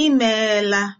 I